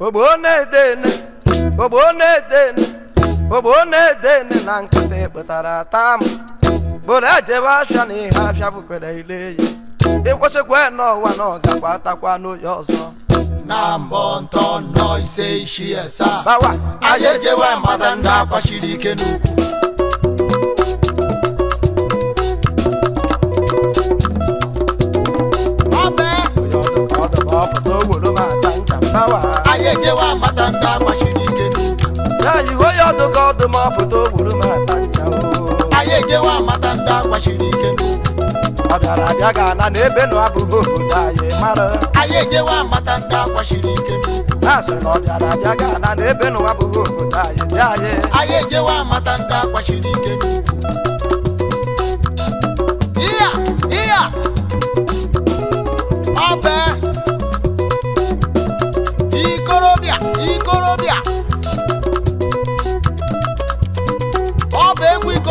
ogbonedene ogbonedene ogbonedene na nkịtị kpụtara tam bụrụ ejebe afịa na ihe afịa bụkwere ile ya e ịkwụsịkwa n'ụwa na ọ gakwa atakwa n'oye ọzọ na mbọ ntọ nọ ise ishi asaa anyị ejewe mata ndị akwachiri ike n'ukwu nayiwe ya ọdụ ka ọdụ ma foto gburu m ata anyị ejewa amata ndị akwachiri ike ọ bịara abịa ga ana na ebe nụ abụghị obodo anyị mara anyị ejewa amata ndị akwachiri ike ha na ọ bịara abịa ga ana na ebe nụ abụghị obodo anyị dị anyị anyị ejewa amata ndị akwachiri ike iya iya ọbee ikorobịa ikorobịa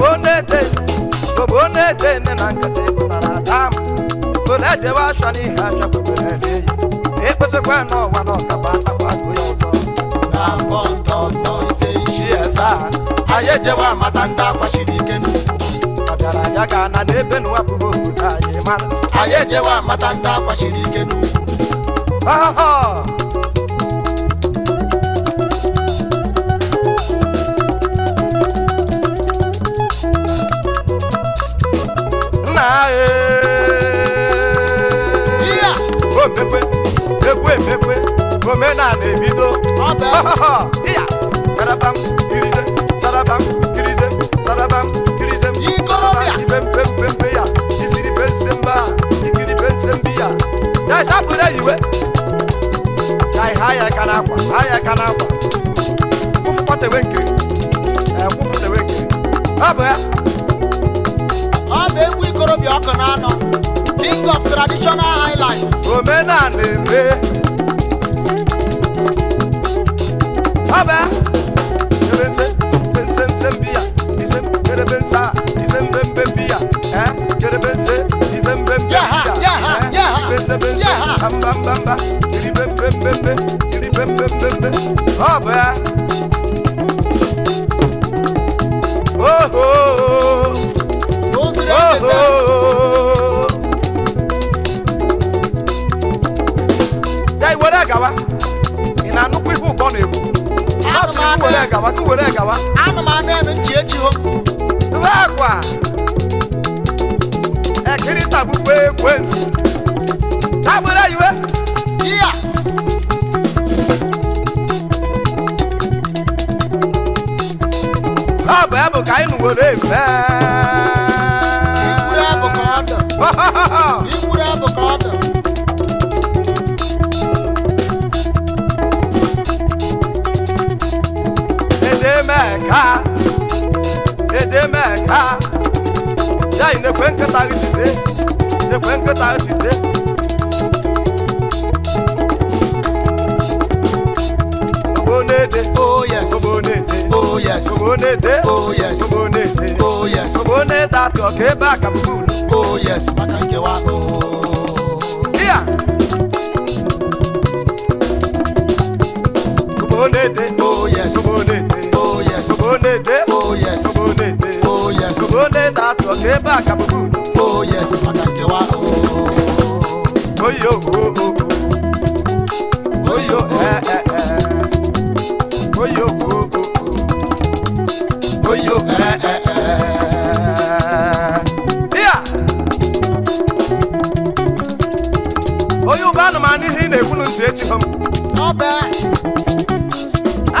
bobonetene bobonetene nankate bụtaradam bonejewe ashọna ihe achọ kweberere eyi ekpesikwa n'ụwa na ọkaba akwado ya ọzọ na mbọ ntọntọ ise isi asaa anyị ejewe amata ndị akwachiri ike n'ugwu ọbịara ya ga na n'ebe n'ụwapụghị obodo anyị mara anyị ejewe amata ndị akwachiri ike n'ugwu ọhọ abụ ya ọ bụ egwu ikorobịa ọkụ na-anọ king of traditional highlife omenala eme ọ bụ ya ebe nse nse nse nse mbi ya ise kerebe nse a ise mbembe mbi ya kerebe nse ise mbembe mbi ya ibe nse be nse mbamba mba iri bembe mbembe iri bembe mbembe ọ bụ ya were gawa ana m anụ eme nchi echi o ebe akwa ekiri tabukwa ekwensu jide meka ya yi nekwe nkịta gị jide nekwe nkịta gị jide ogbonede oh yes ogbonede oh yes ogbonede oh yes ogbonede oh yes ogbonede atọ ka ebe aka mbụ oh bá kàbùkù. ó yẹ sí pàtàkì wa. oyo oh. oyo oyo ẹ ẹ ẹ oyo oyo oyo ẹ ẹ ẹ. oyo bụ anụmanụ ihe ị na-ekwulu ntị echighọ m. ọbẹ.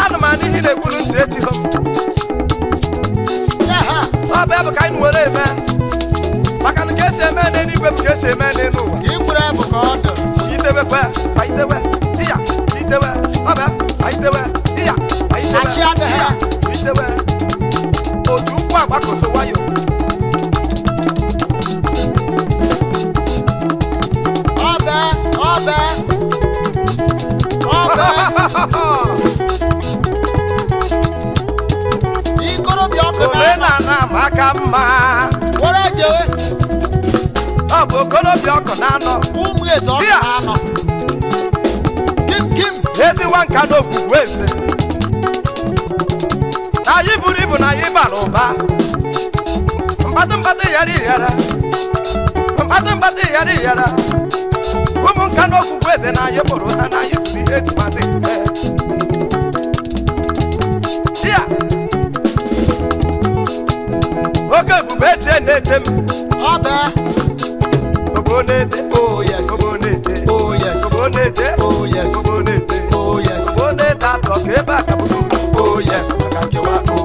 anụmanụ ihe ị na-ekwulu ntị echighọ m. ọbẹ bụ ka anyị nwere eme ibepu ka esi eme nri n'ụwa ka ọ dụ itewe aitewe wayo ọbẹ ọbẹ ọbẹ ikorobịa ọkụ na-ama aka mma were ọ bụ okolobịa ọkụ na-anọ ụmụ eze ọkọ na-anọ kim kim ezi nwa nka na ogbugbu eze na anyị buru ibu na anyị bara ụba mkpatụ mkpatụ ghara ịghara mkpatụ mkpatụ ghara ịghara ụmụ nka na eze na anyị kpọrọ ha na anyị tụrụ ihe ejimata mgbe ya oke ebube eche na-eche m ọbee Kobonete, oh yes. Kobonete, oh yes. Kobonete, oh yes. Kobonete, oh yes. Kobonete, atọ̀kẹ́ bá kàbùkù. Oh yes, kàkàkíwá o.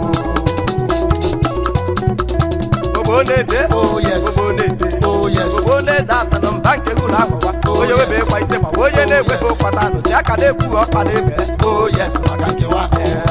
Kobonete, oh yes. Kobonete, oh yes. Kobonete, atọ̀nà mbànkè wúlò àkọ́wá. Onye oh, webe kwa ite ma onye na-egwe bụ ụkpata anụ ji aka na-ekwu ọkpa na-ebere. Oh yes, kàkàkíwá o.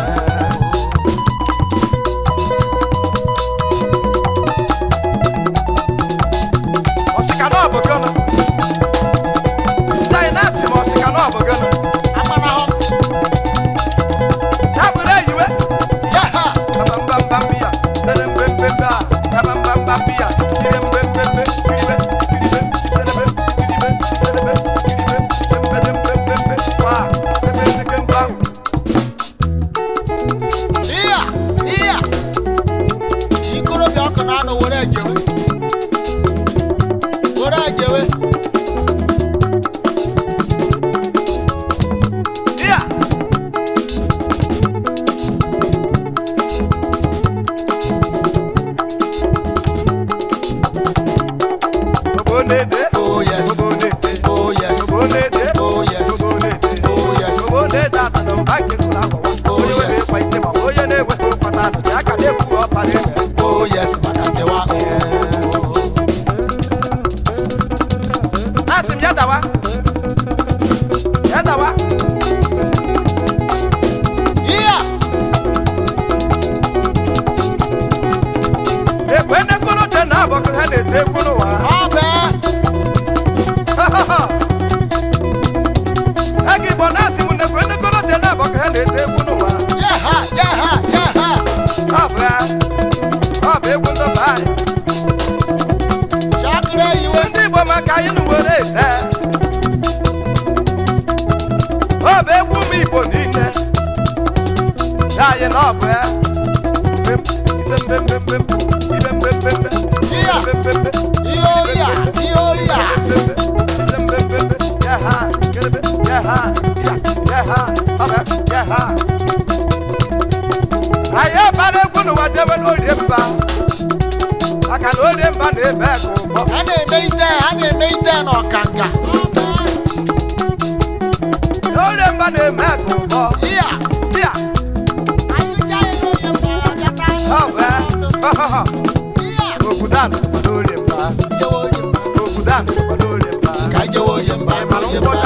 dying up, eh? ayé balẹ̀ gbónú wa jẹ́wé lórí mba àkàlà òde mba ní ẹ̀bẹ̀ kò bọ̀. a na-eme ite a na-eme ite n'ọkanga. lórí mba ní ẹ̀bẹ̀ kò bọ̀. Oh, Okudan Olemba oh Olemba Kaje Olemba Olemba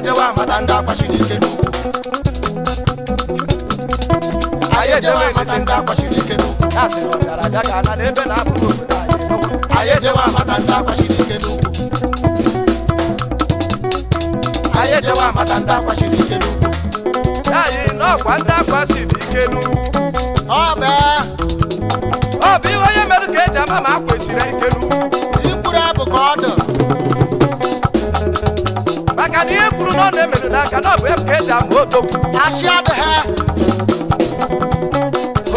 jewe amata ndị akwachiri ike n'ukwu anyị ejewe amata ndị akwachiri ike n'ukwu ya sị na n'ebe na-abụghị obodo anyị ejewe amata ndị akwachiri ike n'ukwu anyị ejewe amata ndị akwachiri ike n'ukwu ya yi na ọkwa ndị akwachiri ike n'ukwu ọ bụ iwe onye mere ka eji ama ma akwesịrị ike n'ukwu ihe ọ na-emere n'aka na ọ bụ ebe ka eji abụ odogwu odogwu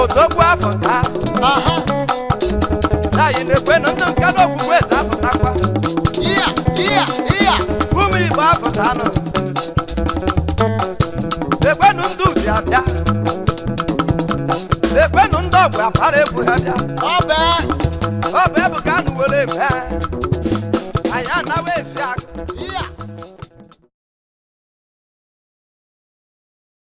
Yeah, yeah, yeah. ekwe na ndị nka na okpukpe eze afọtakwa ụmụ igbo afọta nọ ekwenụ ndị uji abịa ekwenụ ndị ọgwụ agbara egwu ha bịa ọ bụ ebuka anụ were eme anyị anawa ezi aka